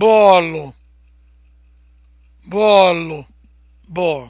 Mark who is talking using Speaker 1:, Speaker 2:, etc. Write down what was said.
Speaker 1: bọọlụ bọọlụ ball